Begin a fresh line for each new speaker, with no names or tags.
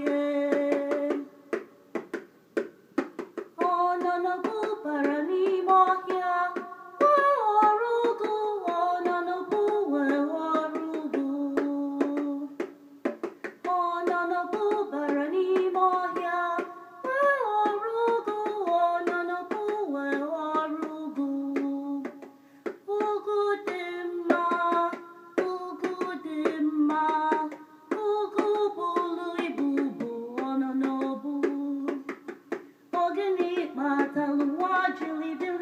oh Mata lua de livre